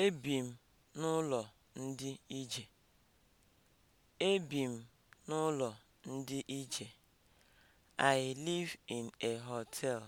Ebi m n'ụlọ ndị ije Ebi m n'ụlọ ndị ije I live in a hotel.